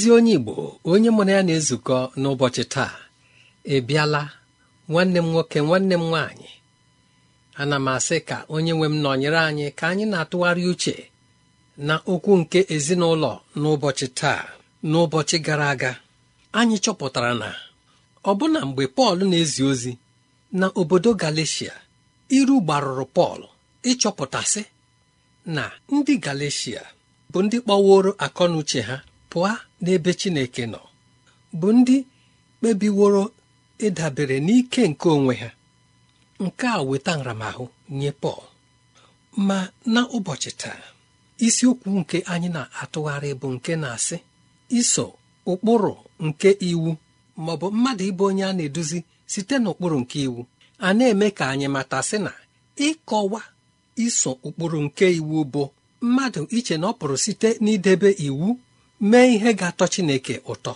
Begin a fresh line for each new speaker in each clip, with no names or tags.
ezi onye igbo onye mụrụ ya na-ezukọ n'ụbọchị taa ebiala, bịala nwanne m nwoke nwanne m nwaanyị ana m asị ka onye nwe m nọnyere anyị ka anyị na-atụgharị uche na okwu nke ezinụlọ n'ụbọchị taa n'ụbọchị gara aga anyị chọpụtara na ọbụna mgbe pọl na-ezi ozi na obodo galicia iru gbarụrụ pọl ịchọpụtasị na ndị galicia bụ ndị kpọworo akọnuche ha pụọ n'ebe Chineke nọ bụ ndị kpebiworo ịdabere n'ike nke onwe ha nke a weta nramahụ nye Pọl ma n'ụbọchị taa isiokwu nke anyị na-atụgharị bụ nke na-asị iso ụkpụrụ nke iwu ma ọ bụ mmadụ ịbụ onye a na-eduzi site n'ụkpụrụ nke iwu a na-eme ka anyị mata sị na ịkọwa iso ụkpụrụ nke iwu bụ mmadụ iche na ọ pụrụ site n'idebe iwu mee ihe ga-atọ Chineke ụtọ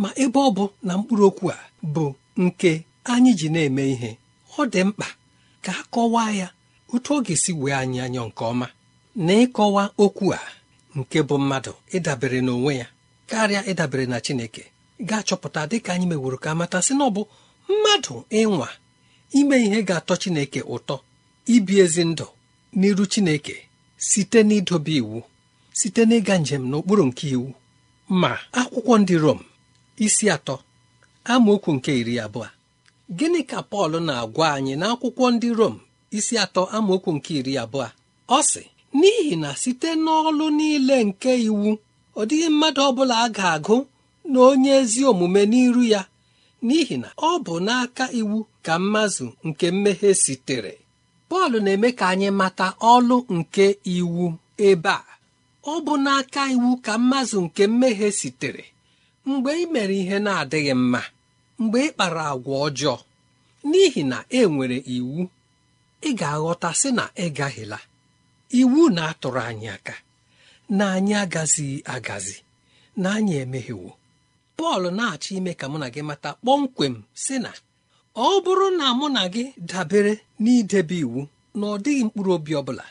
ma ebe ọ bụ na mkpụrụ okwu a bụ nke anyị ji na-eme ihe ọ dị mkpa ka a kọwaa ya otu ọ ga-esi wee anyị anyọ nke ọma na ịkọwa okwu a nke bụ mmadụ ịdabere n'onwe ya karịa ịdabere na Chineke ga-achọpụta dịka anyị meworo ka amata sị na ọ bụ mmadụ ịnwa ime ihe ga-atọ Chineke ụtọ ibi ezi ndụ n'iru Chineke site n'idobe iwu site n'ịga njem n'okpuru nke iwu ma akwụkwọ ndị Rom isi atọ amaokwu nke iri abụọ gịnị ka Pọl na-agwa anyị n'akwụkwọ ndị Rom isi atọ amaokwu nke iri abụọ ọ sị n'ihi na site n'ọlụ niile nke iwu ọ dịghị mmadụ ọbụla a ga-agụ na onye ezi omume n'iru ya n'ihi na ọ bụ n'aka iwu ka mmazụ nke mmehie sitere Pọl na-eme ka anyị mata ọlụ nke iwu ebe a ọ bụ n'aka iwu ka mmazụ nke mmehie sitere mgbe ị mere ihe na-adịghị mma mgbe ị kpara agwa ọjọọ n'ihi na e nwere iwu ị ga-aghọta sị na ị iwu na-atụrụ anyị aka na anyị agazighị agazi na anyị emehiewo Pọl na-achọ ime ka mụ na gị mata kpọmkwem sị na ọ bụrụ na mụ na gị dabere n'idebe iwu na ọ dịghị mkpụrụ obi ọ bụla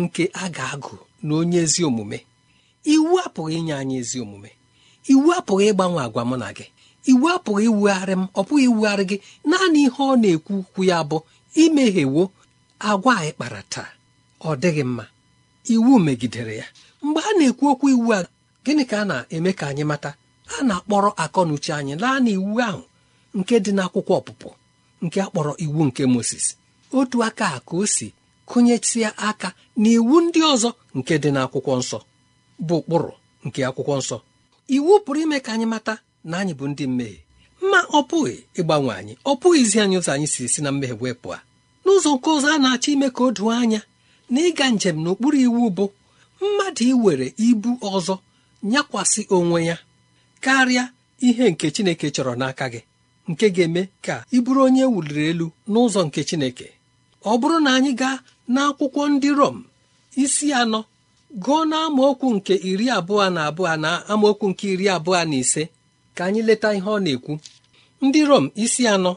nke a ga-agụ na onye ezi omume iwu apụghị inye anyị ezi omume iwu apụghị ịgbanwe agwa mụ na gị iwu apụghị iwugharị m ọ pụghị iwugharị gị naanị ihe ọ na-ekwu ukwu ya bụ imehiewo agwa anyị kpara taa ọ dịghị mma iwu megidere ya mgbe a na-ekwu okwu iwu a gịnị ka a na-eme ka anyị mata a na-akpọrọ akọnuche anyị naanị iwu ahụ nke dị n'akwụkwọ ọpụpụ nke akpọrọ iwu nke Moses otu aka a ka o si kụnyetịa aka na iwu ndị ọzọ nke dị n'akwụkwọ nsọ bụ ụkpụrụ nke akwụkwọ nsọ iwu pụrụ ime ka anyị mata na anyị bụ ndị mmehie ma ọ pụghị ịgbanwe anyị ọ izi anyị ụzọ anyị si si na mmehie wee pụọ n'ụzọ nke ụzọ a na-achọ ime ka o doo anya na ịga njem n'okpuru iwu bụ mmadụ iwere ibu ọzọ nyakwasị onwe ya karịa ihe nke Chineke chọrọ n'aka gị nke ga-eme ka ịbụrụ bụrụ onye e wuliri elu n'ụzọ nke Chineke ọ bụrụ na anyị gaa n'akwụkwọ ndị Rom isi anọ gụọ na amaokwu nke iri abụọ na abụọ na amaokwu nke iri abụọ na ise ka anyị leta ihe ọ na-ekwu ndị Rom isi anọ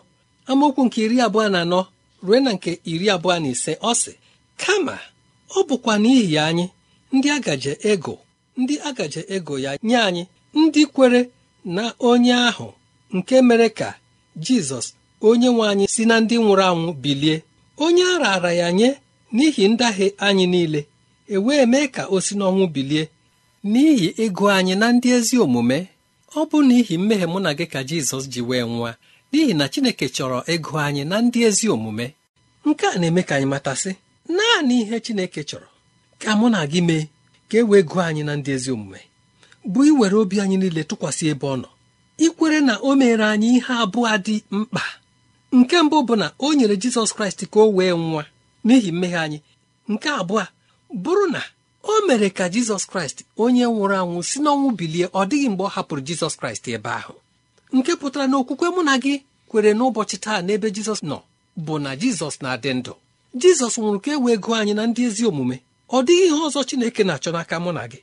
amaokwu nke iri abụọ na anọ ruo na nke iri abụọ na ise ọ sị kama ọ bụkwa n'ihi anyị ndị agaje ego ndị agaje ego ya nye anyị ndị kwere na onye ahụ nke mere ka Jizọs onye nwe anyị si na ndị nwụrụ anwụ bilie onye a raara ya nye n'ihi ndahie anyị niile e wee mee ka o si n'ọnwụ bilie n'ihi ịgụ anyị na ndị ezi omume ọ bụ n'ihi mmehie mụ na gị ka Jizọs ji wee nwa n'ihi na Chineke chọrọ ịgụ anyị na ndị ezi omume nke a na-eme ka anyị matasị naanị ihe Chineke chọrọ ka mụ na gị mee ka e wee gụọ anyị na ndị ezi omume bụ iwere obi anyị niile tụkwasị ebe ọ nọ ikwere na o mere anyị ihe abụọ dị mkpa nke mbụ bụ na o nyere Jizọs Kraịst ka o wee nwa n'ihi mmehie anyị nke abụọ bụrụ na o mere ka jizọs kraịst onye nwụrụ anwụ si n'ọnwụ bilie ọ dịghị mgbe ọ hapụrụ jizọs kraịst ebe ahụ nke pụtara na okwukwe mụ na gị kwere n'ụbọchị taa n'ebe jizọs nọ bụ na jizọs na-adị ndụ jizọs nwụrụ ka e wee anyị na ndị ezi omume ọ dịghị ihe ọzọ chineke na-achọ n'aka mụ na gị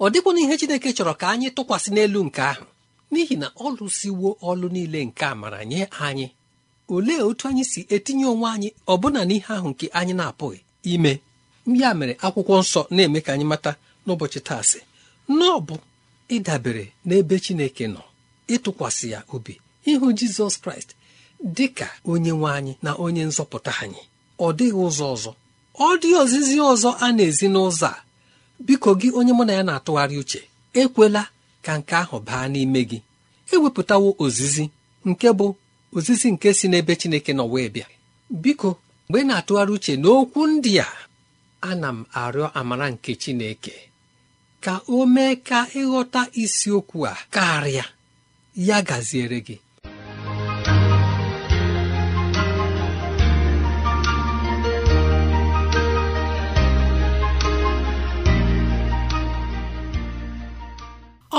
ọ na ihe chineke chọrọ ka anyị tụkwasị n'elu nke ahụ n'ihi na ọ siwo ọlụ niile nke amara nye anyị olee otu anyị si etinye onwe anyị ọbụna n'ihe ahụ nke anyị na-apụghị ime ya mere akwụkwọ nsọ na-eme ka anyị mata n'ụbọchị taa sị bụ ịdabere n'ebe Chineke nọ ịtụkwasị ya obi ịhụ Jizọs Kraịst dị ka onye nwe anyị na onye nzọpụta anyị ọ dịghị ụzọ ọzọ ọ dị ozizi ọzọ a na-ezi n'ụzọ a biko gị onye mụ na ya na-atụgharị uche ekwela ka nke ahụ baa n'ime gị ewepụtawo ozizi nke bụ ozizi nke si n'ebe Chineke nọ wee bịa biko mgbe na-atụgharị uche n'okwu ndị a ana m arịọ amara nke Chineke ka o mee ka ịghọta isiokwu a karịa ya gaziere gị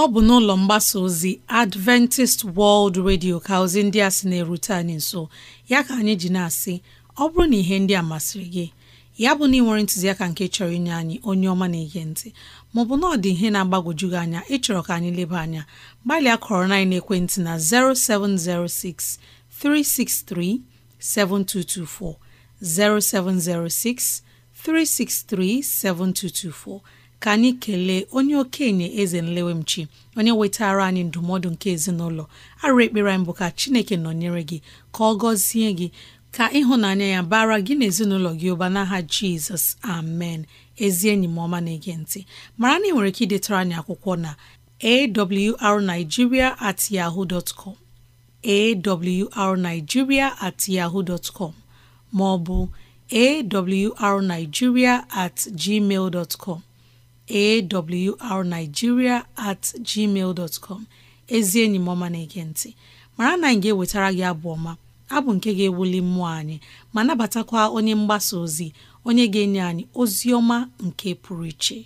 ọ bụ n'ụlọ mgbasa ozi Adventist World Radio ka ozi ndị a sị na-erute anyị nso ya ka anyị ji na-asị ọ bụrụ na ihe ndị a masịrị gị ya bụ na ị nwere ntụziaka nke chọrọ inye anyị onye ọma na-ege ntị maọbụ na ọ dị ihe na-agbagwoju gị anya ịchọrọ ka anyị leba anya gbalịa kọrọ na ekwentị na 0706 363 7224 0706 363 7224 ka anyị kelee onye okenye eze nlewemchi onye wetara anyị ndụmọdụ nke ezinụlọ arụ ekpere anyị bụ ka chineke nọnyere gị ka ọ gọzie gị ka ịhụnanya ya bara gị na ezinụlọ gị ụba n'aha jizọs amen ezi enyi m ọma na-ege ntị mara na ị nwere ike idetara anyị akwụkwọ na awrnigeria at yahoo dot arigiria at yahoo dot maọbụ ma ọ bụ at gmail dot awrnigeria at gmail dot ezi enyi m na-ege nti mara na anyị ga-ewetara gị abụ ọma abụ nke ga-ewuli mmụọ anyị ma nabatakwa onye mgbasa ozi onye ga-enye anyị ozi ọma nke pụrụ iche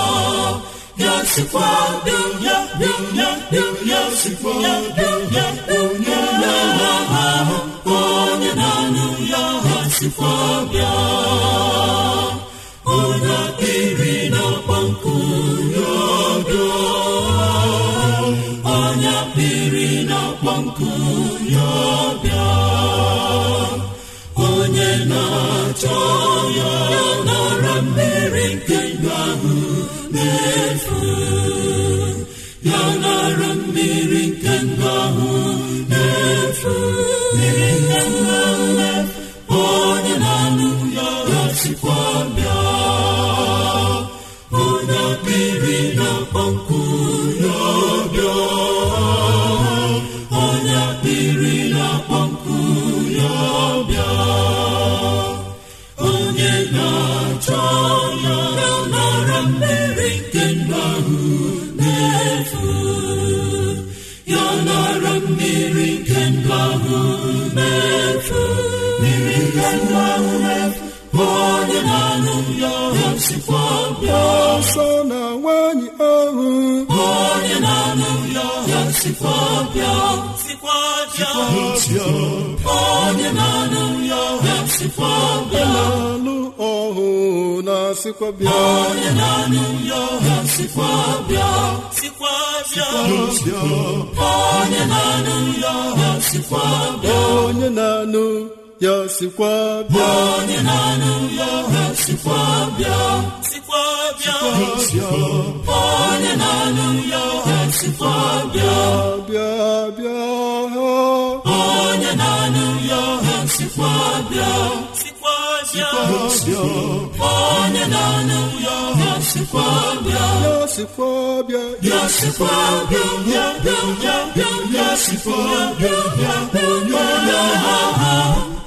sikwa dum ya dum ya ya ya onye na-aha ya ha bịa na ya bịa onye na ya bịa onye na ya ya ọsọ na nwanyị ahụ onye na-anụ ya ya sikwa bịa sikwa onye na ya ya sikwa bịa na-alụ ọhụ na-asịkwa bịa onye na-anụ ya ya sikwa bịa sikwa ya ya sikwa bịa onye na-anụ ya sikwa bịa onye na-anụ ya sikwa bịa sikwa bịa onye na-anụ ya sikwa bịa bịa bịa onye na-anụ ya sikwa bịa sikwa bịa onye na-anụ ya sikwa bịa ya sikwa bịa ya sikwa bịa bịa bịa bịa ya sikwa bịa bịa onye na-anụ ya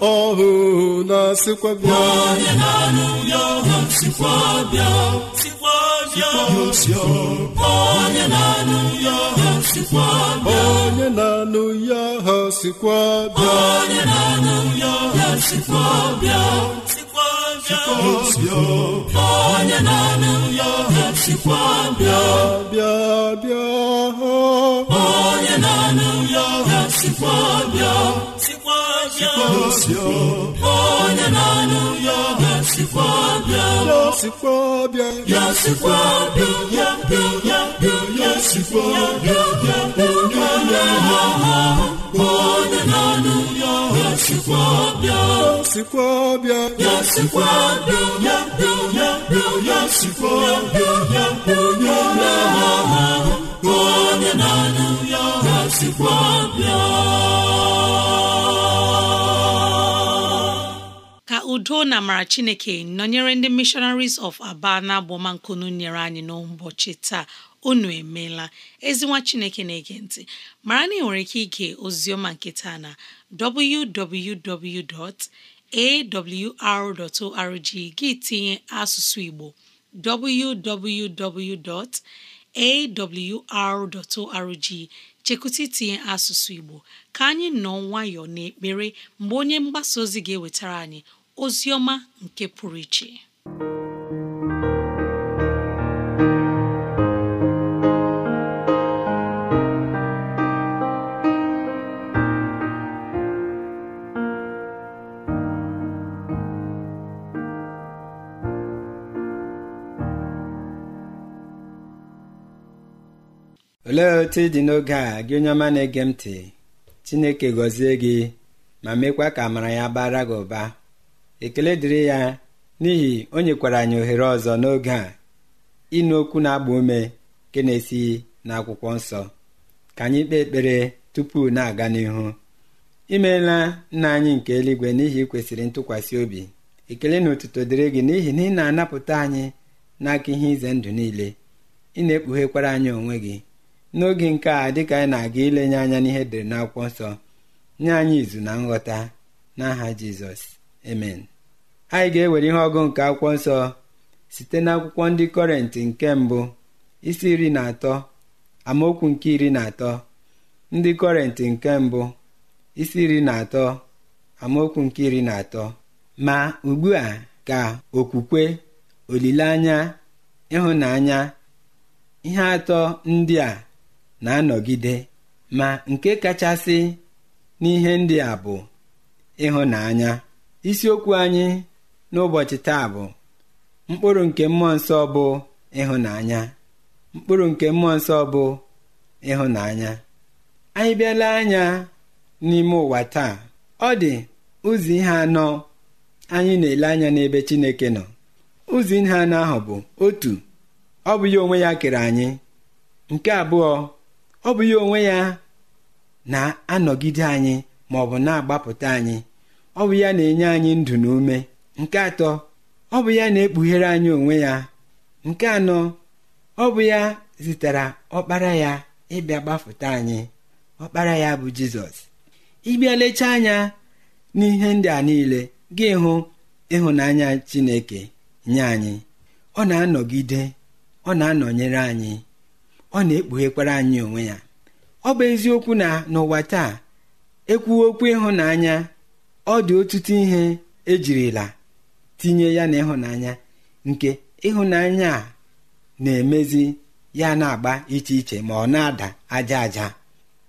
ọhụụ na bịa na-anụ ya sikwa bịa onye na-anụ ya ha sikwa bịa onye na-anụ ya ha sikwa bịa bịa bịa onye onye na-anụ ya ha sikwa bịa bịa onye na-anụ ya sikwa ya ya ya ya ya ya onye na ya anụ ya ya sikwa ya sikwa ya ya ya ya ya onye na-anụ ya ya sikwa bịa
udo na amara chineke nọnyere ndị missionaries of aba na nyere anyị n'ụbọchị taa unu emeela ezinwa chineke na-ege ntị mara na ị nwere ike ige ozioma nketa na www.awr.org gị tinye asụsụ igbo www.awr.org chekwụta itinye asụsụ igbo ka anyị nọ nwayọọ n'ekpere mgbe onye mgbasa ozi ga-ewetara anyị ozi nke pụrụ iche
olee otu ị dị n'oge a gị onye ọma na-ege m ntị chineke gọzie gị ma mekwa ka amara ya bara gị ụba ekele dịrị ya n'ihi o nyekwara anyị ohere ọzọ n'oge a ịnụ okwu na-agba ume nke na-esi n'akwụkwọ nsọ ka anyị kpee ekpere tupu na-aga n'ihu imeela nna anyị nke eluigwe n'ihi kwesịrị ntụkwasị obi ekele na otuto dịrị gị n'ihi na ị na-anapụta anyị n'aka ihe ize ndụ niile ị na-ekpughekwara anyị onwe gị n'oge nke a dịka anyị na-aga ilenye anya n'ihe dere n'akwụkwọ nsọ nye anyị izu na nghọta n'aha Jizọs emen anyị ga-ewere ihe ọgụ nke akwụkwọ nsọ site n'akwụkwọ ndị kọrentị nke mbụ isi iri na atọ amaokwu nke iri na atọ ndị kọrentị nke mbụ isi iri na atọ amaokwu nke iri na atọ ma ugbu a ka okwukwe olileanya ịhụnanya ihe atọ ndị a na-anọgide ma nke kachasị n'ihe ndị a bụ ịhụnanya isiokwu anyị n'ụbọchị taa bụ mkpụrụ nke mmụọ nsọ bụ ịhụnanya mkpụrụ nke mmụọ nsọ bụ ịhụnanya anyị bịala anya n'ime ụwa taa ọ dị ụzọ ihe anọ anyị na-ele anya n'ebe Chineke nọ ụzọ ihe anọ ahụ bụ otu ọ bụ ya onwe ya kere anyị nke abụọ ọ bụ ya onwe ya na-anọgide anyị ma ọ bụ na-agbapụta anyị ọ bụ ya na-enye anyị ndụ na ume nke atọ ọ bụ ya na-ekpughere anyị onwe ya nke anọ ọ bụ ya zitere ọkpara ya ịbịa gbafụta anyị ọkpara ya bụ jizọs ịbịa lechaa anya n'ihe ndị a niile gị hụ ịhụnanya chineke nye anyị ọ na-anọgide ọ na-anọnyere anyị ọ na-ekpughekwara anyị onwe ya ọ bụ eziokwu na n'ụwa taa ekwuwe okwu ịhụnanya ọ dị ọtụtụ ihe ejirila tinye ya na ịhụnanya nke ịhụnanya a na-emezi ya na-agba iche iche ma ọ na-ada aja aja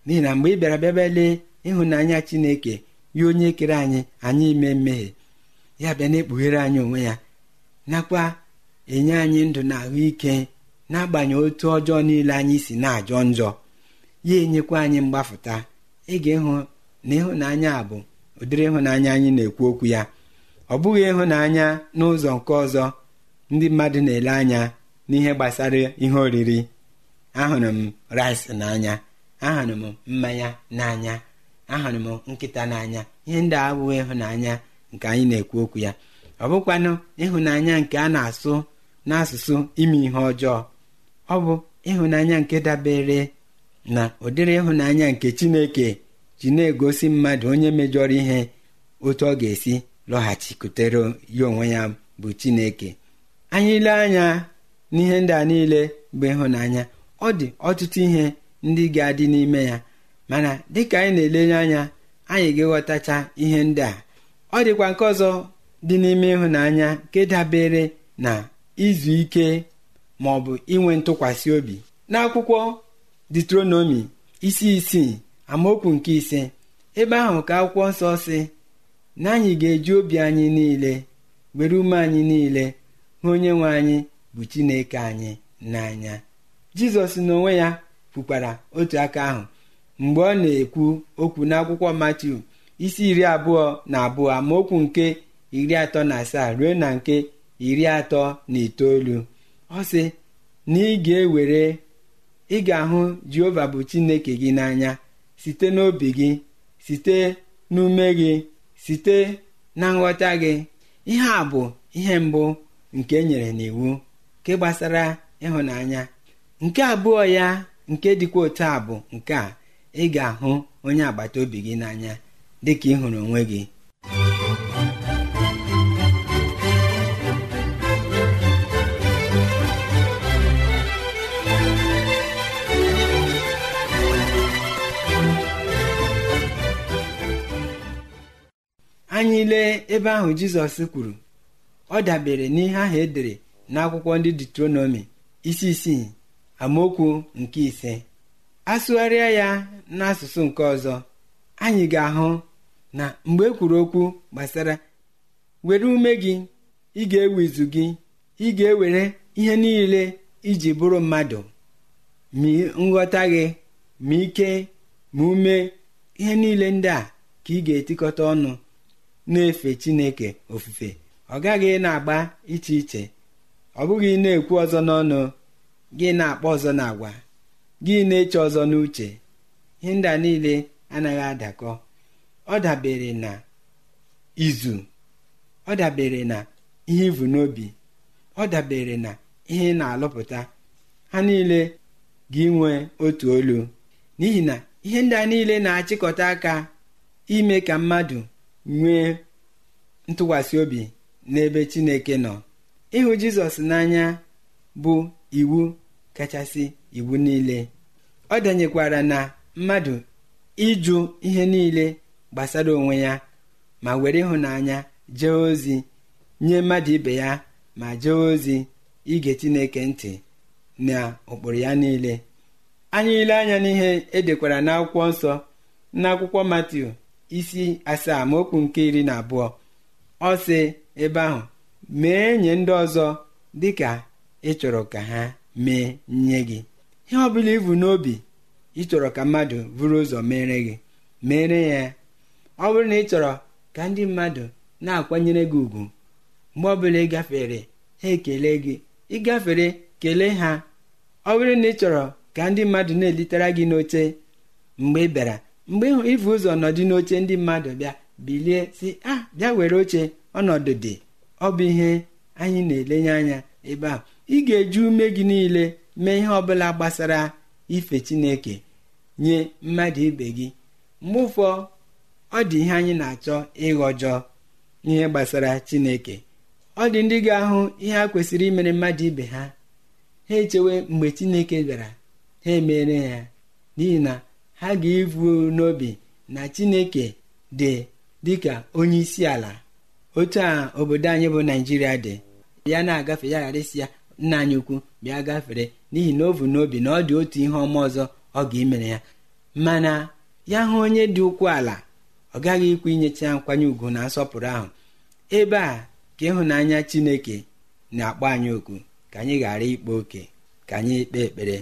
n'ihi na mgbe ị bịara bịa lee ịhụnanya chineke ya onye kere anyị anyị ime mmehie ya bịa na-ekpughere anyị onwe ya nakwa enye anyị ndụ na ahụike n'agbanyeghị otu ọjọọ niile anyị si na-ajọ njọ ya enyekwa anyị mgbafụta ị ga ịhụ na ịhụnanya abụ. bụ ụdịrị ịhụnanya anyị na-ekwu okwu ya ọ bụghị ịhụnanya n'ụzọ nke ọzọ ndị mmadụ na-ele anya n'ihe gbasara ihe oriri ahụrụ m rice n'anya ahụrụ m mmanya n'anya ahụrụ m nkịta n'anya ihe ndị abụghị ịhụnanya nke anyị na-ekwu okwu ya ọ bụkwanụ ịhụnanya nke a na-asụ n'asụsụ ime ihe ọjọọ ọ bụ ịhụnanya nke dabere na ụdịrị ịhụnanya nke Chineke ji na-egosi mmadụ onye mejọrọ ihe otu ọ ga-esi lọghachikutere ya onwe ya bụ chineke anyị ile anya n'ihe ndị a niile bụ ịhụnanya ọ dị ọtụtụ ihe ndị ga-adị n'ime ya mana dịka anyị na-elenye anya anyị ga-aghọtacha ihe ndị a ọ dịkwa nke ọzọ dị n'ime ịhụnanya nke dabere na izu ike ma ọ bụ inwe ntụkwasị obi n'akwụkwọ ditronomi isi isii amaokwu nke ise ebe ahụ ka akwụkwọ nsọ si na ga-eji obi anyị niile were ume anyị niile hụ onye nwe anyị bụ chineke anyị n'anya jizọs n'onwe ya kwukwara otu aka ahụ mgbe ọ na-ekwu okwu n'akwụkwọ matiu isi iri abụọ na abụọ amaokwu nke iri atọ na asaa ruo na nke iri atọ na itoolu ọ sị na ị ga-ewere ị ahụ jehova bụ chineke gị n'anya site n'obi gị site n'ume gị site na nghọta gị ihe a bụ ihe mbụ nke e nyere n'iwu nke gbasara ịhụnanya nke abụọ ya nke dịkwa otu a bụ nke a ị ga-ahụ onye agbata obi gị n'anya dịka ị hụrụ onwe gị anyị lee ebe ahụ jizọs kwuru ọ dabere n'ihe ahụ edere n'akwụkwọ ndị detronomi isi isii amaokwu nke ise asụgharịa ya n'asụsụ nke ọzọ anyị ga-ahụ na mgbe ekwuru kwuru okwu gbasara were ume gị ị ga-ewe izu gị ị ga-ewere ihe niile iji bụrụ mmadụ ma nghọta gị ma ike ma ume ihe niile ndị a ka ị ga-etikọta ọnụ na-efe chineke ofufe ọ gaghị na-agba iche iche ọ bụghị na-ekwu ọzọ n'ọnụ gị na-akpọ ọzọ na agwa gị na-eche ọzọ n'uche ihe ndị niile anaghị adakọ ọ dabere na izu ọ dabere na ihe ivu n'obi ọ dabere na ihe na-alụpụta ha niile gị nwee otu olu n'ihi na ihe ndị a niile na-achịkọta aka ime ka mmadụ nwee ntụkwasị obi n'ebe chineke nọ ịhụ jizọs n'anya bụ iwu kachasị iwu niile ọ denyekwara na mmadụ ịjụ ihe niile gbasara onwe ya ma were ịhụnanya jee ozi nye mmadụ ibe ya ma jee ozi ige chineke ntị na ụkpụrụ ya niile anyị ile anya n'ihe edekwara n'akwụkwọ nsọ n'akwụkwọ Matiu isi asaa ma okwu nke iri na abụọ ọ si ebe ahụ mee nye ndị ọzọ dịka ị chọrọ ka ha mee nye gị ihe ọbụla bụla ibu n'obi ị chọrọ ka mmadụ buru ụzọ mere gị mere ya ọ bụrụ na ị ka ndị mmadụ na-akwanyere gị ugwu mgbe ọbụla ị gafere ha ekele gị ị gafere kelee ha ọ na ị chọrọ ka ndị mmadụ na-elitere gị n'oche mgbe ị bịara mgbe ịhụ ịfụ ụzọ nọdụ n'oche ndị mmadụ bịa bilie si ah bịa were oche ọnọdụ dị ọ bụ ihe anyị na-elenye anya ebe a ị ga-eji ume gị niile mee ihe ọbụla gbasara ife chineke nye mmadụ ibe gị mgbe ụfọ ọ dị ihe anyị na-achọ ịghọjọ n'ihe gbasara chineke ọ dị ndị ga-ahụ ihe a kwesịrị imere mmadụ ibe ha ha echewe mgbe chineke bịara ha emere ya n'ihi na ha ga-evu n'obi na chineke dị dịka onye isi ala otu a obodo anyị bụ naijiria dị ya na-agafe ya ghara isi ya nna anyị ukwu bịa gafere n'ihi na ovu n'obi na ọ dị otu ihe ọma ọzọ ọ ga-emere ya mana ya hụ onye dị ukwu ala ọ gaghị ikwu inyecha ya nkwanye ugwu na nsọpụrụ ahụ ebe a ka ịhụnanya chineke na-akpọ anyị okwu ka anyị ghara ikpe oke ka anyị kpee ekpere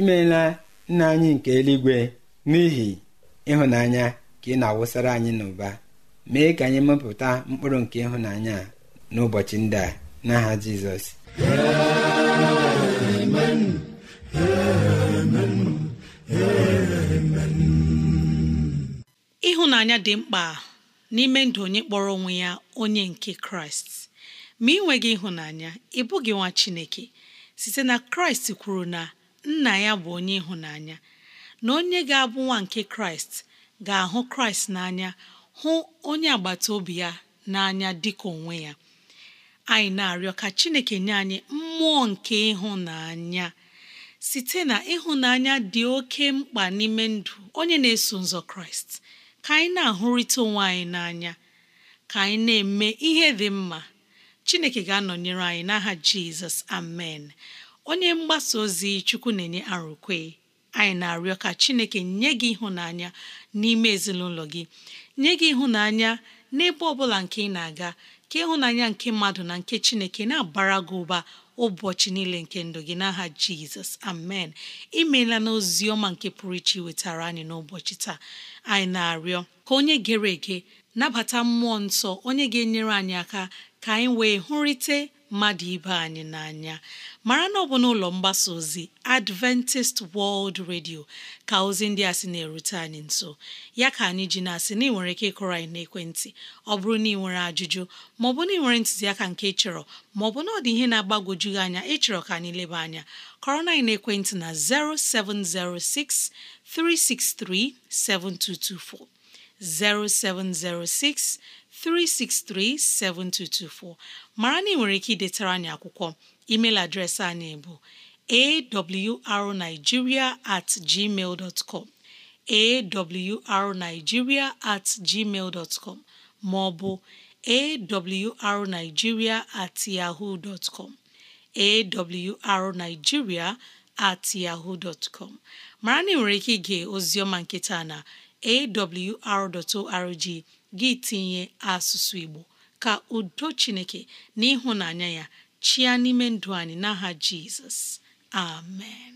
imeela nna anyị nke eluigwe n'ihi ịhụnanya ka ị na-awụsara anyị n'ụba mee ka anyị mepụta mkpụrụ nke ịhụnanya a n'ụbọchị ndị a n'aha jizọs
ịhụnanya dị mkpa n'ime ndụ onye kpọrọ onwe ya onye nke kraịst ma ị nweghị ịhụnanya ị bụghị nwa chineke site na kraịst kwuru na nna ya bụ onye ịhụnanya na onye ga-abụ nwa nke kraịst ga-ahụ kraịst n'anya hụ onye agbata obi ya n'anya dịka onwe ya anyị na-arịọ ka chineke nye anyị mmụọ nke ịhụnanya site na ịhụnanya dị oke mkpa n'ime ndụ onye na-eso nzọ kraịst ka anyị na-ahụrịta onwe anyị n'anya ka anyị na-eme ihe dị mma chineke ga-anọnyere anyị n'aha jizọs amen onye mgbasa ozi chukwu na-enye arụkwe anyị na-arịọ ka chineke nye gị ịhụnanya n'ime ezinụlọ gị nye gị ịhụnanya n'ebe ọ bụla nke ị na-aga ka ịhụnanya nke mmadụ na nke chineke na-abara gị ụba ụbọchị niile nke ndụ gị n'aha jizọs amen imeela n'ozi ọma nke pụrụ iche wetara anyị n'ụbọchị taa anyị na-arịọ ka onye gere ege nabata mmụọ nsọ onye ga-enyere anyị aka ka anyị wee hụrịte mmadụ ibe anyị n'anya mara na ọ bụ n'ụlọ mgbasa ozi Adventist World Radio ka ozi ndị a sị na-erute anyị nso ya ka anyị ji na-asị na ị nwere ike ịkụrụ anyị n'ekwentị ọ bụrụ na ị nwere ajụjụ maọbụ na ị nwere ntụziaka nke chọrọ maọbụ na ọ dị ihe na-agbagwoju anya ịchọrọ ka anyị leba anya kọrọ na n'ekwentị na 0706 363 7224 0706 3637224 mara na ị nwere ike idetara anyị akwụkwọ email adreesị anyị bụ awrnigeria at gmail dot com at gmail dot com ma ọ bụ awrnigeria at yahoo dot com awrnigeria at yahoo dot com mara na ị nwere ike ige ozioma nketa na awr.org gị tinye asụsụ Igbo ka udo Chineke na ịhụnanya ya chịa n'ime ndụ anyị n'aha Jizọs amen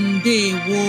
mbe gwọ